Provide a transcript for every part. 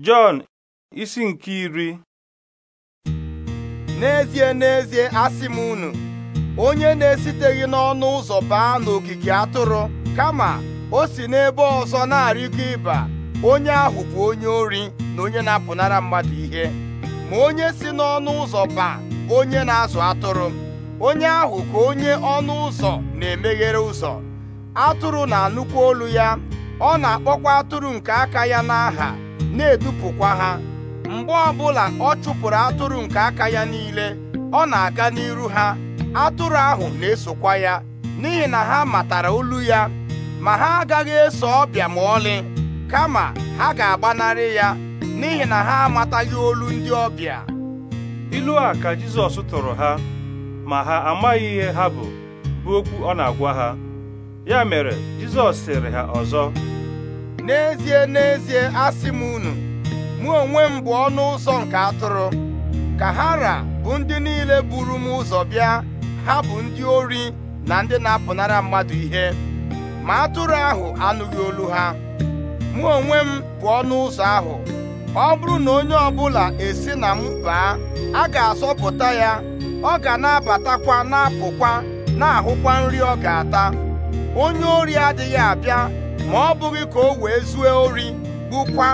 Jọn isi nke iri n'ezie n'ezie asị m unu onye na-esiteghị n'ọnụ ụzọ baa n'ogige atụrụ kama o si n'ebe ọzọ na-arịgo ịba onye ahụ bụ onye ori na onye na-apụnara mmadụ ihe ma onye si n'ọnụ ụzọ baa onye na-azụ atụrụ onye ahụ ka onye ọnụ ụzọ na-emeghere ụzọ atụrụ na-anụkwa olu ya ọ na-akpọkwa atụrụ nke aka ya n'aha na-edupụkwa ha mgbe ọbụla ọ chụpụrụ atụrụ nke aka ya niile ọ na-aga n'iru ha atụrụ ahụ na-esokwa ya n'ihi na ha matara olu ya ma ha agaghị eso ọbịa ma ọlị kama ha ga-agbanarị ya n'ihi na ha amataghị olu ndị ọbịa ilu a ka Jizọs tụrụ ha ma ha amaghị ihe ha bụ bụ okwu ọ na-agwa ha ya mere Jizọs sịrị ha ọzọ n'ezie n'ezie asị m unu mụ onwe m bụ ọnụ ụzọ nke atụrụ ka hara bụ ndị niile buru m ụzọ bịa ha bụ ndị ori na ndị na-apụnara mmadụ ihe ma atụrụ ahụ anụghị olu ha mụ onwe m bụ ọnụ ụzọ ahụ ọ bụrụ na onye ọbụla esi na m baa a ga-asọpụta ya ọ ga na-abatakwa na-apụkwa na-ahụkwa nri ọ ga-ata onye ori adịghị abịa ma ọ bụghị ka o wee zue ori gbukwa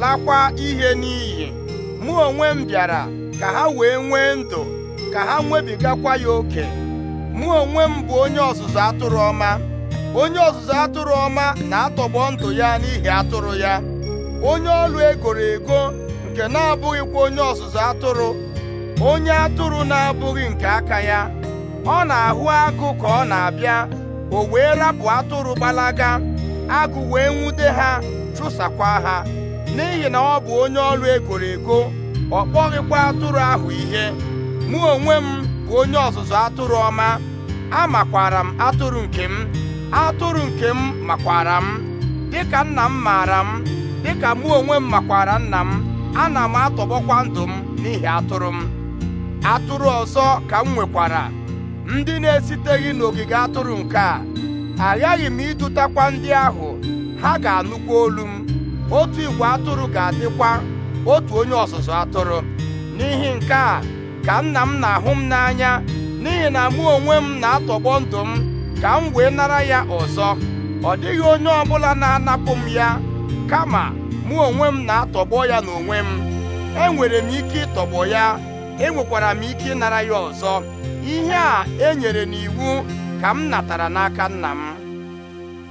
lakwa ihe n'iyi mụ onwe m bịara ka ha wee nwee ndụ ka ha nwebigakwa ya oke mụ onwe m bụ onye ọzụzụ atụrụ ọma onye ọzụzụ atụrụ ọma na-atọgbọ ndụ ya n'ihi atụrụ ya onye ọlụ egoro ego nke na-abụghịkwa onye ọzụzụ atụrụ onye atụrụ na-abụghị nke aka ya ọ na-ahụ agụ ka ọ na-abịa o wee rapụ atụrụ gbalaga agụ wee nwute ha chụsakwa ha n'ihi na ọ bụ onye ọrụ egoro ego ọ kpọghịkwa atụrụ ahụ ihe mụ onwe m bụ onye ọzụzụ atụrụ ọma amakwara m atụrụ nke m atụrụ nke m makwara m dịka nna m maara m dịka mụ onwe m makwara nna m ana m atọgbọkwa ndụ m n'ihi atụrụ m atụrụ ọzọ ka m nwekwara ndị na-esiteghị n'ogige atụrụ nke a aghaghị m ịdụtakwa ndị ahụ ha ga-anụkwa olu m otu igwe atụrụ ga-adịkwa otu onye ọzụzụ atụrụ n'ihi nke a ka nna m na-ahụ m n'anya n'ihi na mụ onwe m na-atọgbọ ndụ m ka m wee nara ya ọzọ ọ dịghị onye ọbụla na-anapụ m ya kama mụ onwe m na-atọgbọ ya n'onwe m enwere m ike ịtọgbọ ya enwekwara m ike ịnara ya ọzọ ihe a enyere n'iwu ka m natara n'aka nna m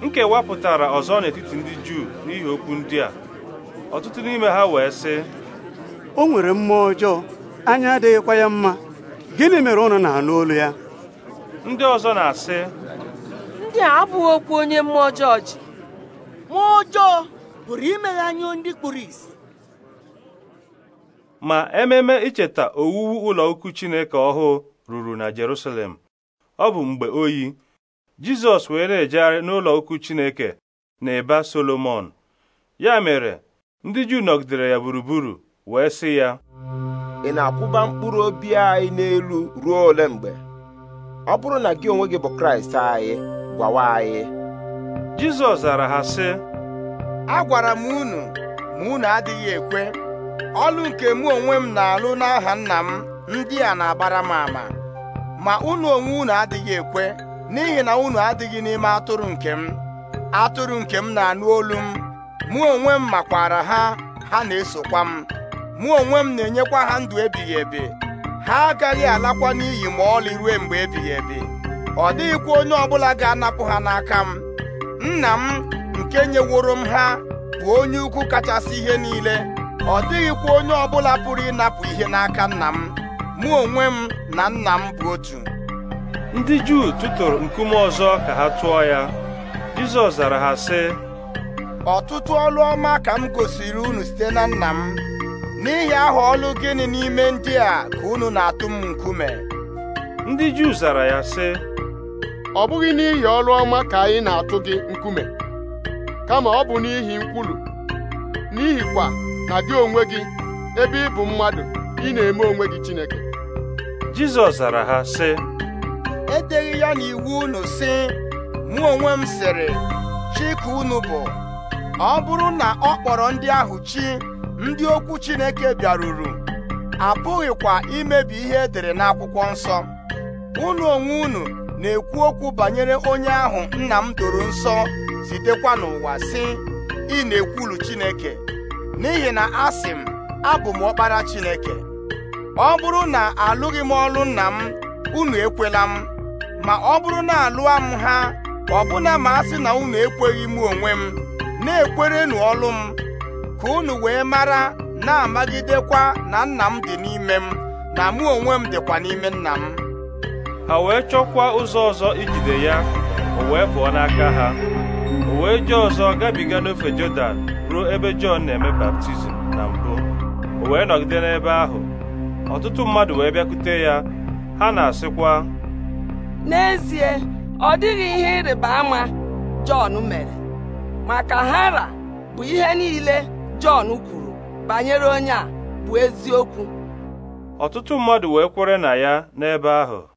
nkewa pụtara ọzọ n'etiti ndị Juu n'ihi okwu ndị a ọtụtụ n'ime ha wee sị o nwere mmụọ ọjọọ anya adịghịkwa ya mma gịnị mere ụnụ na-anụ olu ya ndị ọzọ na-asị ndị a abụghị okwu onye mmụọ ọjọọ ji mmụọ ọjọọ pụrụ imeghe anya ndị kpụrụ isi ma ememe icheta owuwu ụlọ ukwu Chineke ọhụụ ruru na Jerusalem ọ bụ mgbe oyi Jizọs wee na-ejegharị n'ụlọ ukwu Chineke na ịba Solomon ya mere ndị Juu nọgidere ya gburugburu wee sị ya ị na-akwụba mkpụrụ obi anyị n'elu ruo ole mgbe ọ bụrụ na gị onwe gị bụ Kraịst anyị gwawa anyị Jizọs zara ha sị agwara m unu ma unu adịghị ekwe ọlụ nke mụ onwe m na-alụ n'aha nna m ndị a na-agbara m ama ma unu onwe unu adịghị ekwe n'ihi na unu adịghị n'ime atụrụ nke m atụrụ nke m na-anụ olu m mụ onwe m makwara ha ha na-esokwa m mụ onwe m na-enyekwa ha ndụ ebighị ebi ha agaghị alakwa n'iyi ma ọlị ruo mgbe ebighị ebi ọ dịghịkwa onye ọbụla ga-anapụ ha n'aka m nna m nke nyeworo m ha bụ onye ukwu kachasị ihe niile ọ dịghịkwa onye ọbụla pụrụ ịnapụ ihe n'aka nna m mụ onwe m na nna m bụ otu ndị Juu tụtụrụ nkume ọzọ ka ha tụọ ya Jizọs zara ha sị ọtụtụ ọlụ ọma ka m gosiri unu site na nna m n'ihi aha ọlụ gịnị n'ime ndị a ka unu na-atụ m nkume ndị Juu zara ya sị ọ bụghị n'ihi ọlụ ọma ka anyị na-atụ gị nkume kama ọ bụ n'ihi nkwulu n'ihikwa na gị onwe gị ebe ị bụ mmadụ ị na-eme onwe gị Chineke Jizọs zara ha sị edeghị ya n'iwu unu sị mụ onwe m sịrị chi ka unu bụ ọ bụrụ na ọ kpọrọ ndị ahụ chi ndị okwu Chineke bịaruru apụghịkwa imebi ihe edere n'akwụkwọ nsọ unu onwe unu na-ekwu okwu banyere onye ahụ nna m doro nsọ zitekwa n'ụwa sị ị na-ekwulu Chineke n'ihi na asị m abụ m ọkpara Chineke ọ bụrụ na alụghị m ọlụ nna m unu ekwela m ma ọ bụrụ na alụa m ha ọbụna ma a sị na unu ekweghị m onwe m na-ekwerenu ọlụ m ka unu wee mara na-amagidekwa na nna m dị n'ime m na mụ onwe m dịkwa n'ime nna m ha wee chọkwa ụzọ ọzọ ijide ya o wee pụọ n'aka ha o wee ji ọzọ gabiga n'ofe Jọdan ruo ebe Jọn na-eme baptizim na mbụ o wee nọgide n'ebe ahụ ọtụtụ mmadụ wee bịakwute ya ha na-asịkwa n'ezie ọ dịghị ihe ịrịba ama Jọn mere maka hara bụ ihe niile Jọn kwuru banyere onye a bụ eziokwu ọtụtụ mmadụ wee kwere na ya n'ebe ahụ